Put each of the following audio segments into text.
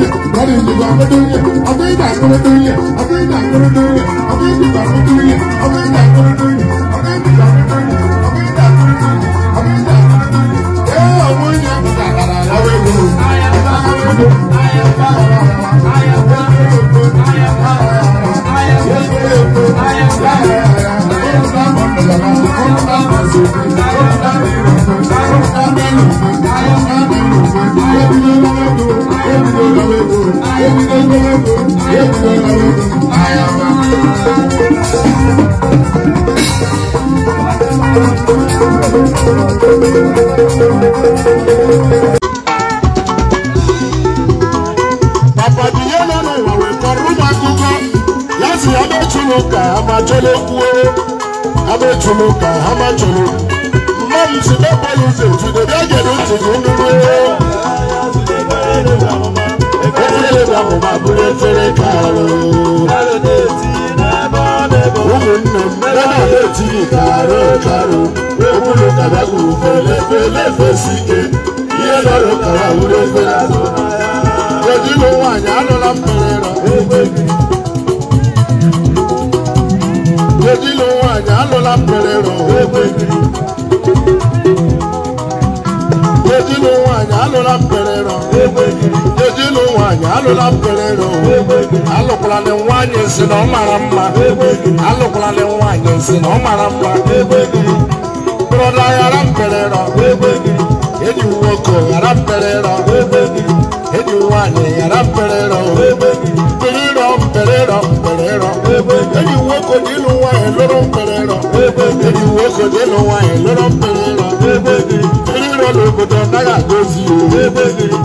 I am ìdìbò àwọn dúnyẹ̀ ọ̀tọ̀ ìgbà àkọ́rẹ́ dúnyẹ̀ ọ̀tọ̀ ìgbà àkọ́rẹ́ ka amacholo kwuo amechulu ka amacholo mmadụ si mebọlụ ụzọ etudo bịa gere ntị gị nụrụ efere bụ amụma bụrụ efere kalụ ụmụnne m ebe a na-etinye karụ karụ ụmụnụ kara uru fele fele fesi ike ihe nọrọ kara uru efere azụ kedu iwe nwaanyị anụla m mere na odilo nwanyị alụla mkpere rọgbe odilo nwanyị alụla mkpere rọgbe odilo nwanyị alụla mkpere rọgbe alụkwala na nwanyị si na ọ mara mma alụkwala na nwanyị si na ọ mara mma brọda ghara mkpere rọgbe enyi nwoke ghara mkpere rọgbe enyi nwanyị ghara mkpere rọgbe mkpere rọ mkpere rọ mkpere rọ enyi nwoke na ịlụ wine lóró ń pẹrẹ rọ. Èdè ìwé kò dénú wine lóró ń pẹrẹ rọ. Torí lọ lè kò tán náírà tó sí o.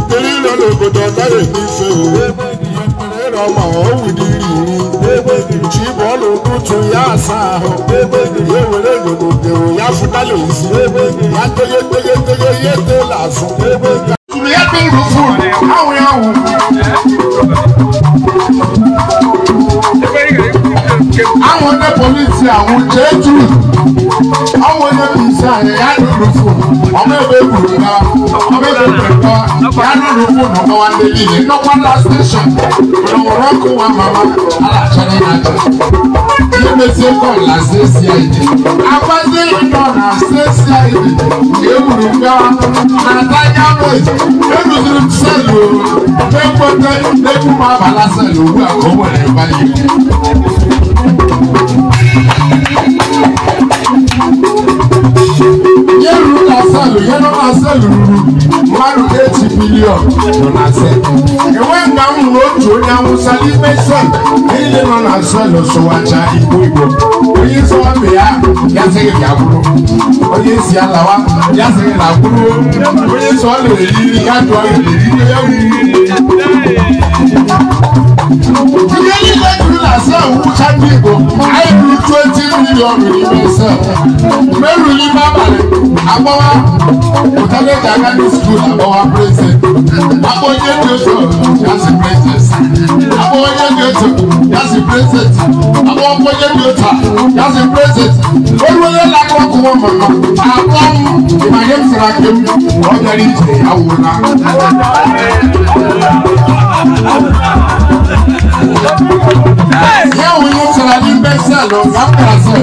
Torí lọ lè kò tán náírà tó sí o. Pẹrẹ rọ mà ó wù dí rìnrìn. Tí bọ́ọ̀lù kútu yá àṣà ahọ́. Yéwò lè gbogbo gbèrò yá fún dálè sí. Yá tóyé tóyé tóyé yé tó làásùn. Tùmí yá tó rú fún mi, àwọn yà wù àwọn ọdẹ polisi àwọn jẹjú àwọn ọdẹ polisi àyè ya lulu fún ọmọ ẹgbẹ gbùdù náà ọmọ ẹgbẹ pẹpẹ ya lulu fún ọmọ wa ndé yìí ní nọkwada station ọlọmọdé kó wa mama alàtsẹni nàjẹ yìí mẹsẹ kọl la ṣe ṣe àyè àgbàdé ìdọ la ṣe ṣe àyè yìí gbùdù gbà nàdájà mẹ ẹnudùn sẹlẹ o ẹgbẹtẹ ẹkú má bàlá sẹlẹ o wúlò àkọwé ẹ báyìí yẹ́rù asẹ́lù yẹ́rù asẹ́lù ruru mmadụ echi bilion nọ na asẹ́lù. Enwe ka m hụrụ otu onye awụsa n'ime sel niile nọ na asẹ́lù sụwacha igbo igbo. Onye isi ọbịa ya ya sịghị ya bụrụ. Onye isi ya lawa ya sịghị na bụrụ. Onye isi ọ lere iri ya dụọ eriri ya riri. Ihe niile juru na asẹ́lù. Sandy Igbo ọrùn yìí ní sẹ mẹrù ní bábàlẹ agbọwa òtẹlẹjà gánà skul agbọwa pírẹsẹ agbọnyẹ ní oṣù yasi pírẹsẹsì agbọnyẹ ní oṣù yasi pírẹsẹsì agbọnyẹ ní oṣù yasi pírẹsẹsì olùwẹlẹ lakọ kọ wọn mọ náà àgbọ ìmàlẹ fúra kéwù ọjà ní ìjìnlẹ yàwó náà. Yẹ́wò yóò sọ̀rọ̀ ní bẹ́sẹ̀ lọ, yàtọ̀ àṣẹ.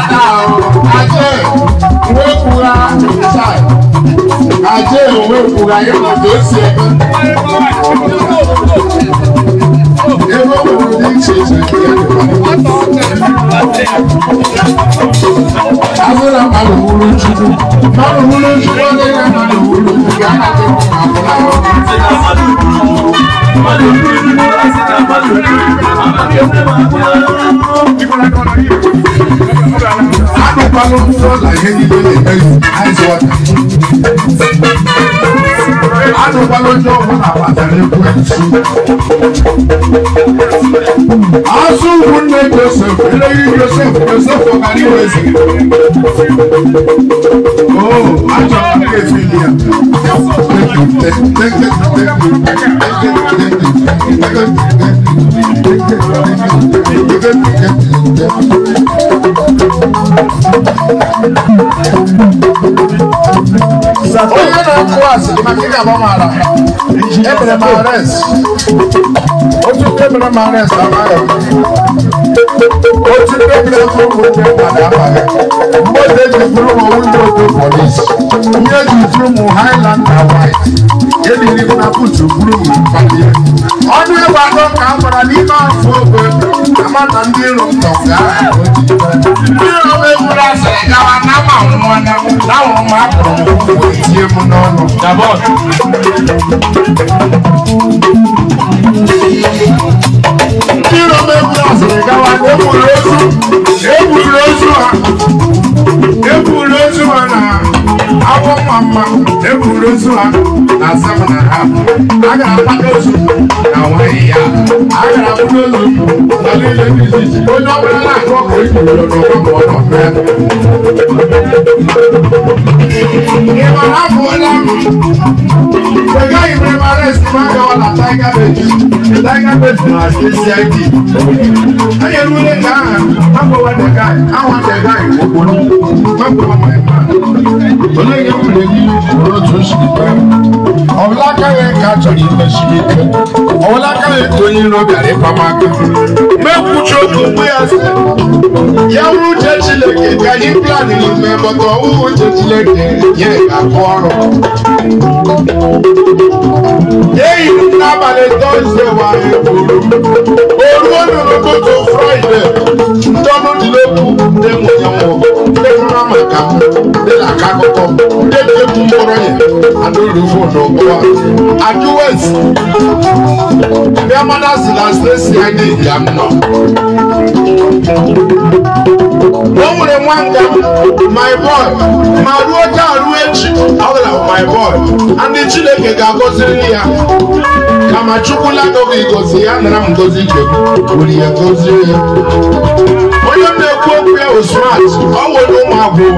padà o ajé ìwé ìkura ṣáì ajé ìwé ìkura yóò tó ṣe ẹgbẹ́. Ewo wo ni ṣe ṣe ìyá nípa? Abúlé màlù make people dey tell you ice water. Àtùpá lọ́jọ́ wọn àpàtà ní Kwẹ́tù. Asúwù ní Joseph, eléyìí Joseph, for ọ̀kadì wẹ̀sì. Oh, àjọ àkàkẹ́ fi ni Thank you. onye na-atụ asị maka ịga agba mara otu ndị emere otu ụmụ polis na eliri ọnụ ebe atọ ka a gwara n'ime afọ ogbe amata ndị iro ntọ tie mu n'ọnụ ndị rom egwu asịrị gawa egburu ozu egburu ozu ha na agwọ mma mma egburu ozu na asam ha a gara akpata ozu na nwanyị ya a gara akpata ozu na niile dị iche iche onye ọbụla na-akụ ọkụ igboro n'ọgbakọ ọ nọ hapụ onye ahụ egaghị m ebe arest m agawa na taiga beji taiga beji na kcid onye rule ka aha agbawa dega awa dega okporo mgbe mgbe onye ga-ewere gị n'otu nsogbu ọ̀làkàwé kàtọ́lì mẹ́sìlẹ́kẹ́ ọ̀làkàwé tóyin lọ́bẹ̀rẹ̀ pàmàkà mẹ́kùtù gbogbo ẹsẹ̀ yẹ́wù jẹ́jìlẹ̀kẹ́ kàyí pílánì ní mẹ́bọ̀tọ̀ wù jẹ́jìlẹ̀kẹ́ yẹ àkọ́ ọ̀rọ̀. yéyì nábàlẹ̀ tọ́sídẹ̀ wà ẹ̀kọ́ olú olùrùkọ́ tó fúráìdẹ̀ tọ́mọdìlẹ́kù dẹ́mu yẹn wọ̀ mara ma ka m dịla aka akụkọ ndị na-egwu mkpọrọ ya adụrụfo n'ụgbọa ajụwes bịamana si na stesi anyị ya m nọ o nwere nwa nga my boy ma ruo taa ruo echi ọ gara my boy ndị chineke ga-agọziri ya kama chukwula gọgọ igozi ya nara m gozi ibe m ya gozie ya onye na-ekwu okwu ya bụ ọ nwere ụmụ abụọ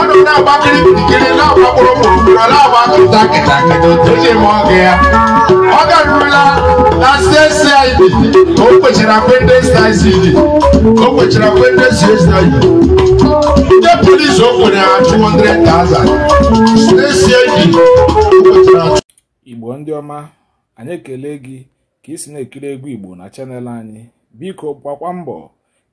ọ nọ na-agbakiri kirikiri na-agbakpọrọ mkpụrụ na-agba kịta kịta kịta oji eme ọgụ ya ọ garurula na CSID ka o kwechara ka o kwechara kwendesd ndị polis o kwere ha 200,000 CSID Igbo ndị ọma anyị ekele gị ka ị si na-ekiri egwu Igbo na chanel anyị biko gbakwa mbọ